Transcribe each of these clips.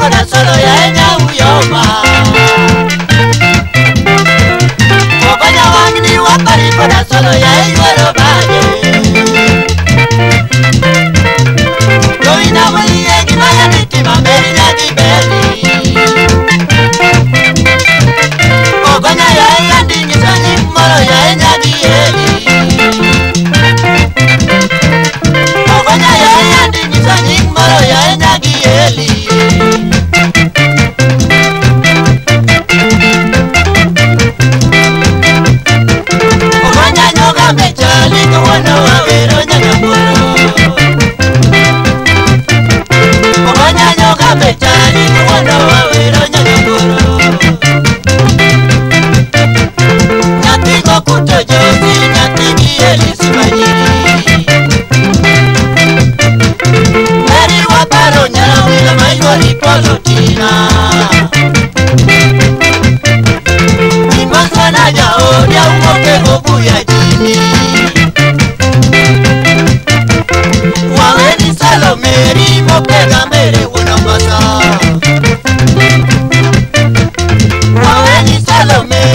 kwenda ya yaenda uyoma Wakonya wangini wakari kwenda solo yaenda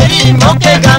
y no quedas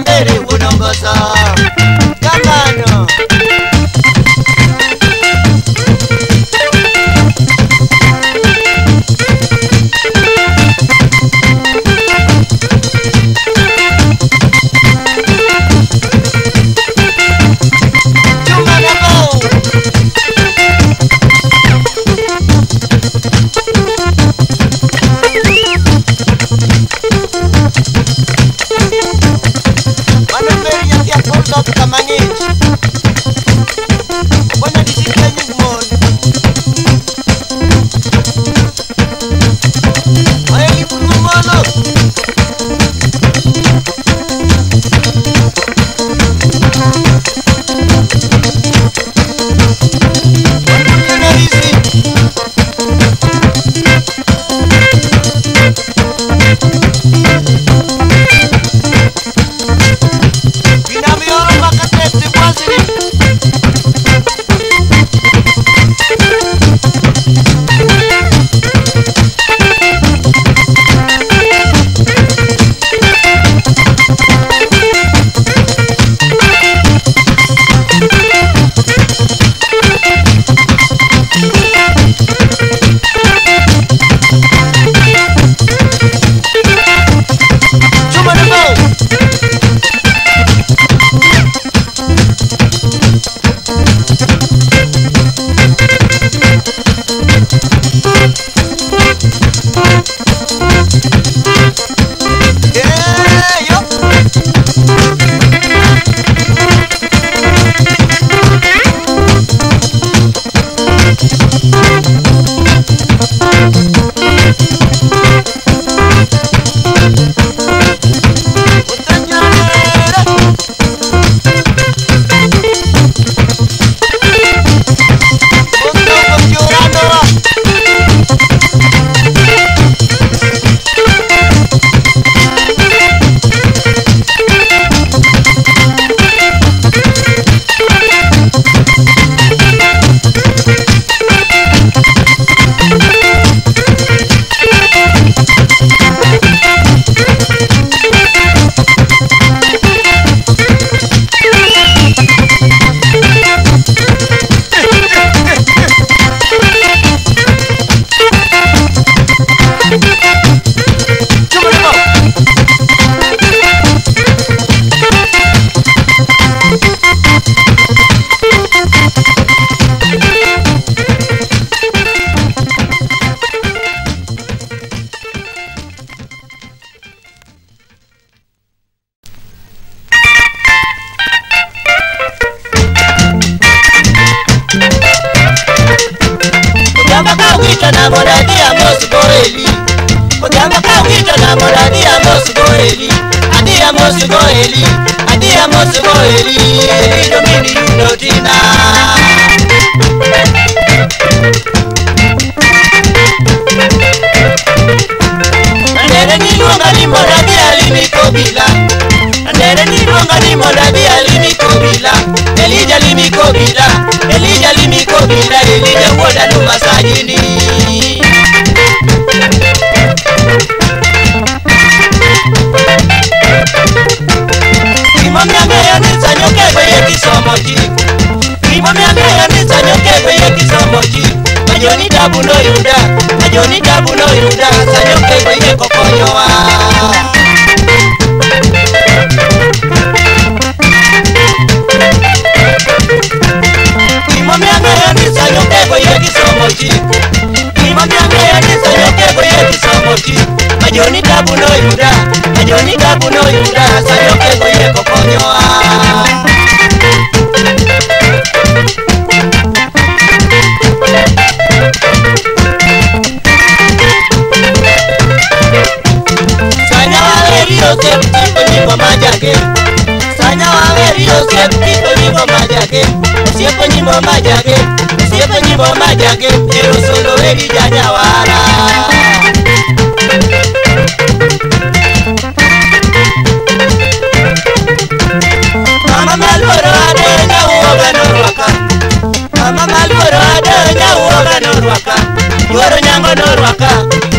Manyika kuno yuda sayo kego yeko konyoa Sanya waverio siapa nyimbo majake Sanya waverio siapa nyimbo majake Siapa nyimbo majake Siapa nyimbo majake Ero wegi janyawara norwaka Koro nyango norwaka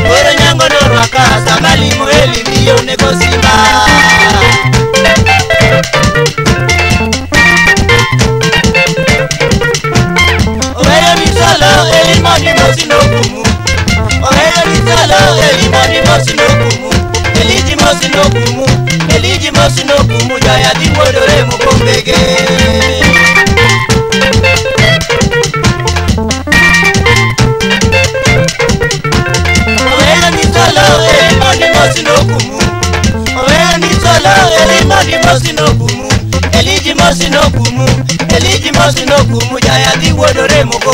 Koro nyango norwaka Sama limu heli miyo negosiba Oweyo nisolo heli moni mosi nokumu Oweyo nisolo heli moni mosi nokumu Heliji mosi nokumu Heliji mosi nokumu Jaya dimodore mukombege Oweyo nisolo heli moni mosi nokumu lóore mọ́ni mo sì lókun mu ọ̀rẹ́ ẹni tó lóore rí mọ́ni mo sì lókun mu èlíjì mo sì lókun mu èlíjì mo sì mu jàyà tí wodore mo kò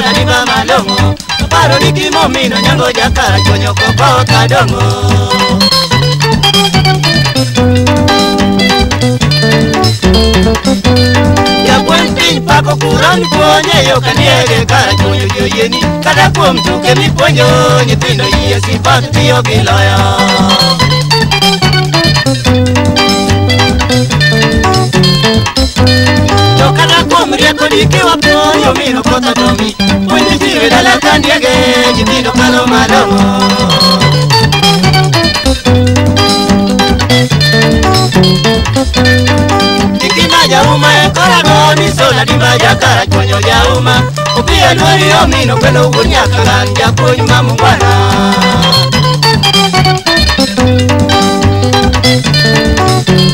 na ni mama long'o aparo ni kimomino nyango jakara chonyoko poka kadongo jagweng' piny pako kuron puonje yo kaniege kara chunyo joyieni kata kuom tuke mipuonjo nyithindo yie sipak tiyo Thank you. To kata kuom rieko dikiwa puoyo miro koth otomi Puonj nyithiwe dala ka ndiege nyithindo kalo malong'o Ikima jauma e korago ni sola dimba jakara chonyo jauma Upia nuori omino kwelo wuon nyaka gan japuonj mamungwana Thank you.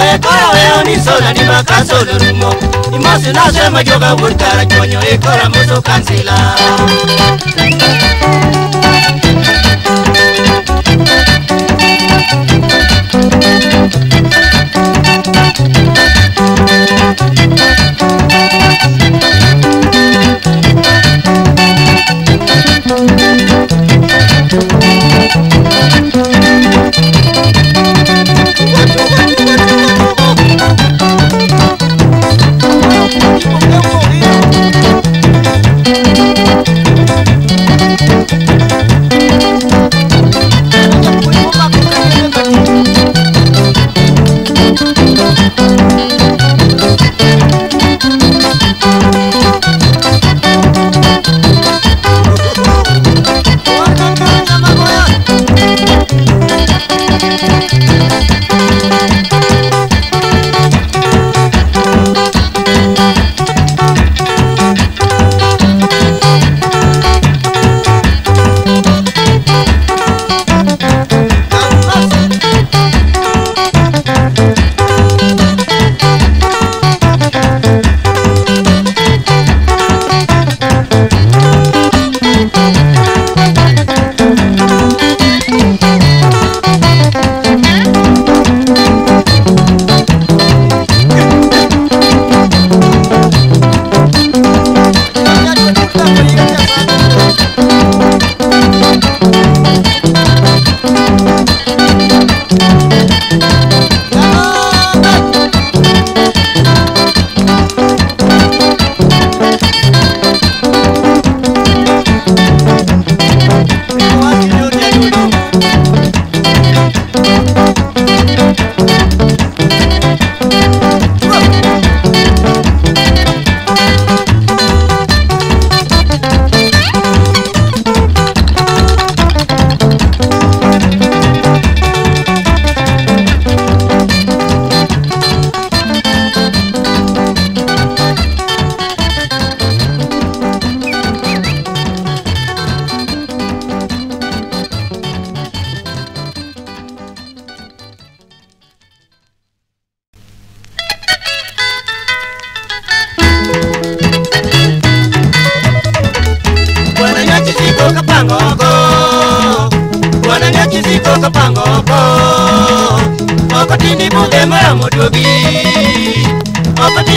ekora kora we onisola ni makaso lurumo Imosi nase majoga wuntara chonyo ekora muso kansila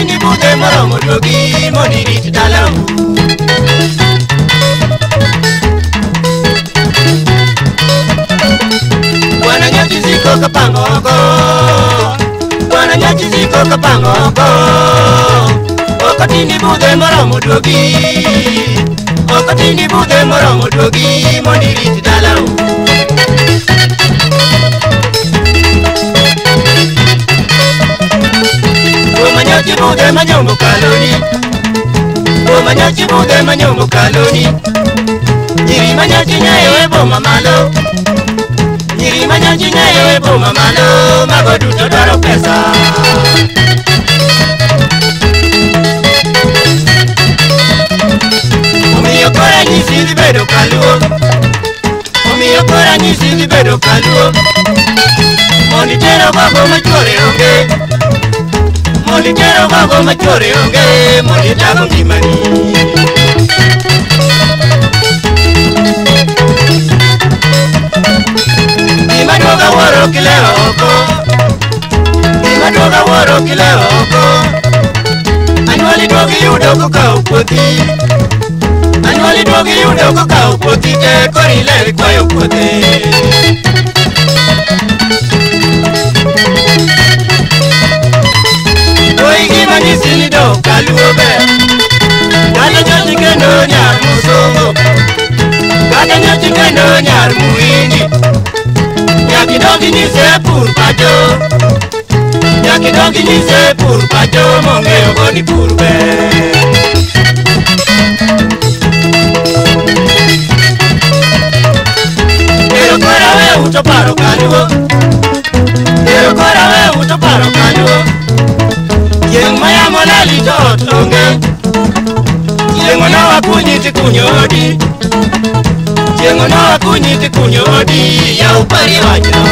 ni bute moro modogi moniri tutalamu Bwana nyoti ziko kapangoko Bwana nyoti ziko kapangoko Okati ni bute moro modogi Okati ni bute moro modogi moniri tutalamu chibude manyomo kaloni o chibude manyomo kaloni nyiri manyachinya ewe boma malo nyiri manyachinya ewe boma malo mago duto pesa omiyo kora nyisi dhi bedo kaluo omiyo kora nyisi dhi bedo kaluo mondo itero babo machuore onge molitero mago machore onge molitago ngimani gimaduoga waro kile oko gimaduoga waro kile oko Anwali dogi yudo kokawo puothi anwali dogi yudo kokawo puothi te kori ler kwayo puothe purpajo nyaki dongi nyise purpajo mong'eyo go ni pur ber ero kora we uto paro kanyo ero kora we uto paro kanyo chieng' mayamo lali to ot onge chieng' onowakunyi tikunyo odi chieng' onowakunyi tikunyo odi yaw pari wachno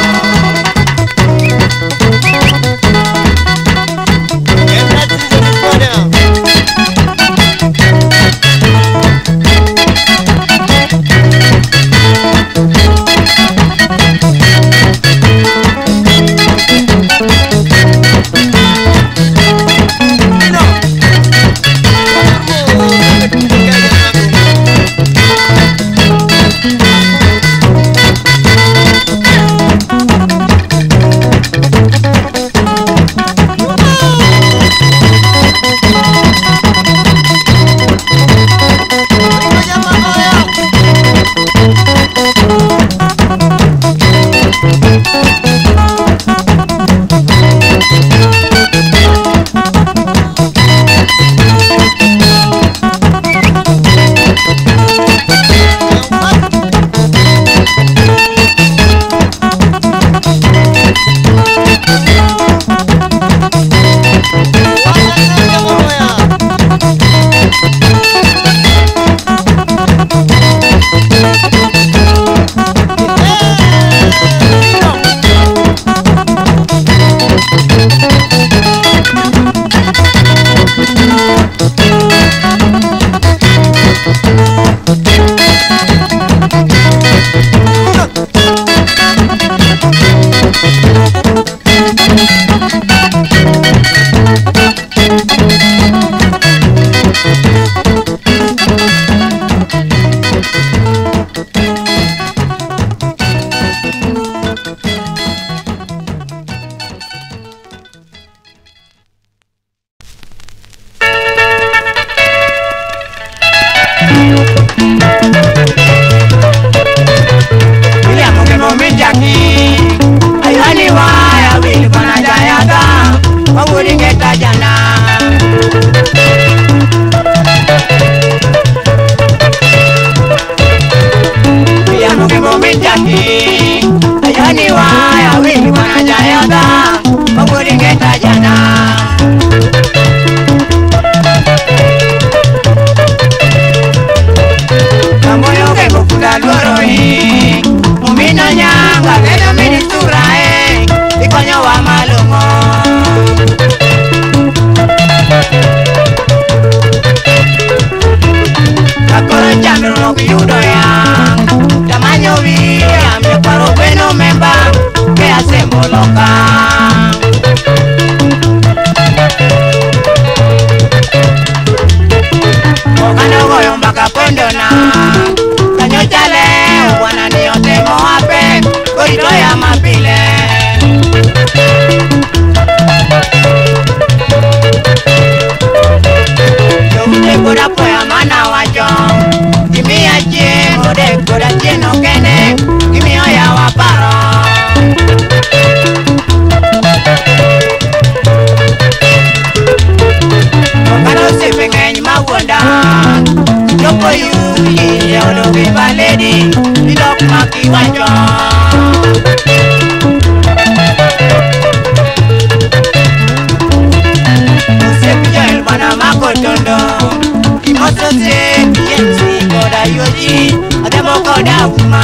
yoji ademoko dakuma.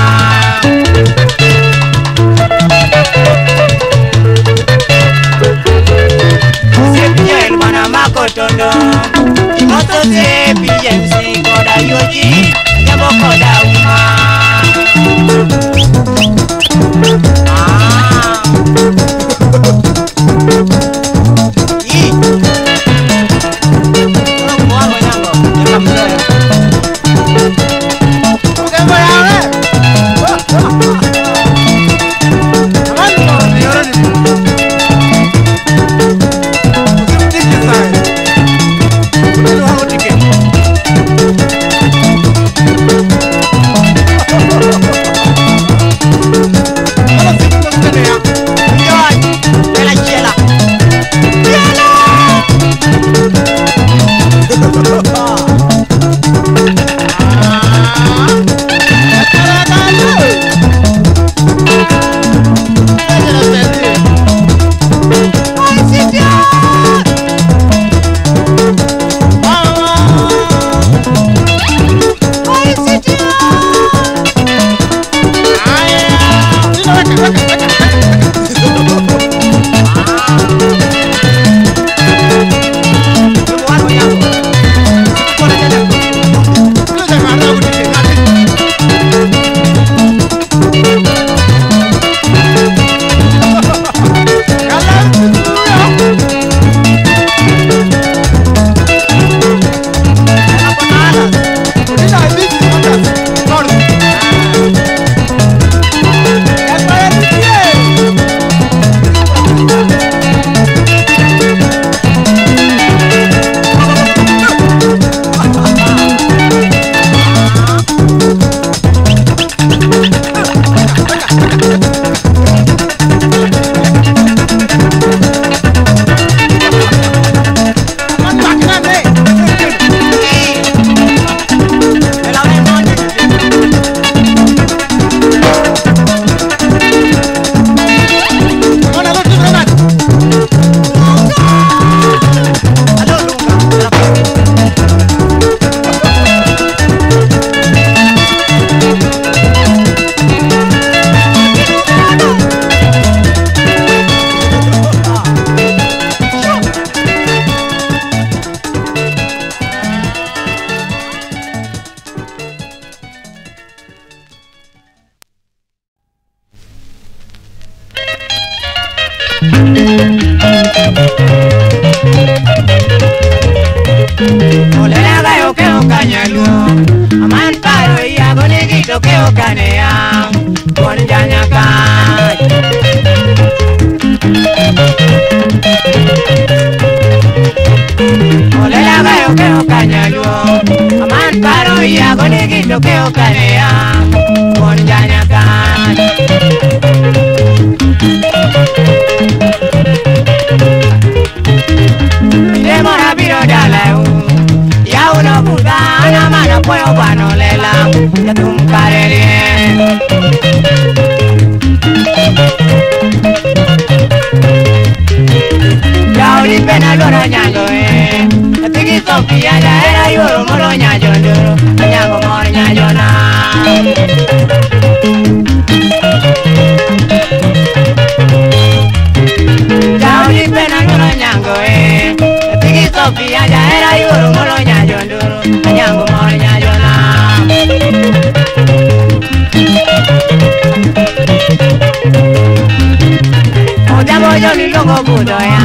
sepiye mana makotondo imoto sepiye nsingo dayoji ademoko dakuma. go budo ya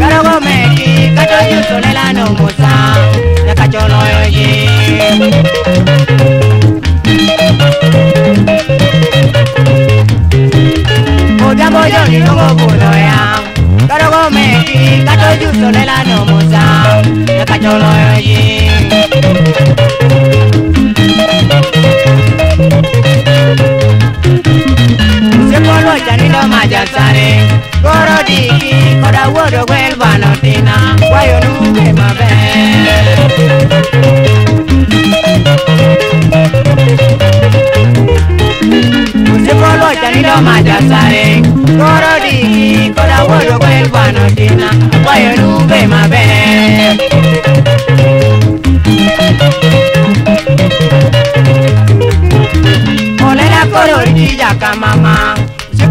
Karo go meki kacho yuto lela no musa Ya kacho no yoji Muda mojo no go budo ya Karo go meki kacho yuto lela no musa Ya kacho no yoji daktari Goro diki koda wuodo gwel bano tina Wayo nuge maber Musipolo chanido ma daktari Goro diki koda wuodo gwel bano tina Wayo nuge maber Olera koro rija kamama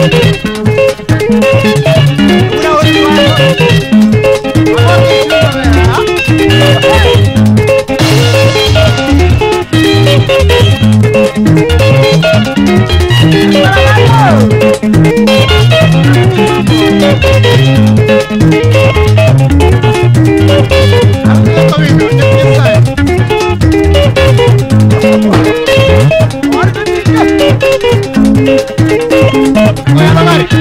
Thank you. Goiânia, Mari.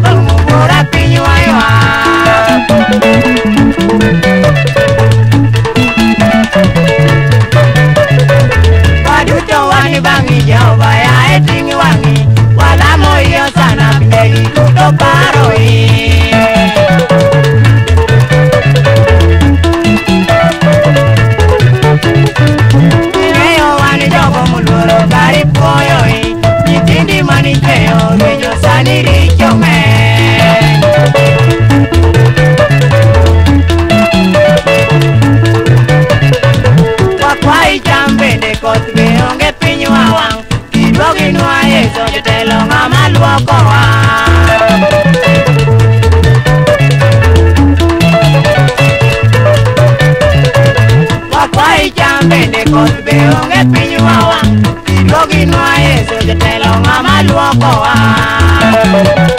vamos. kolbe onge pinywa wa Loginwa Yesu jotelo ng'ama luoko wa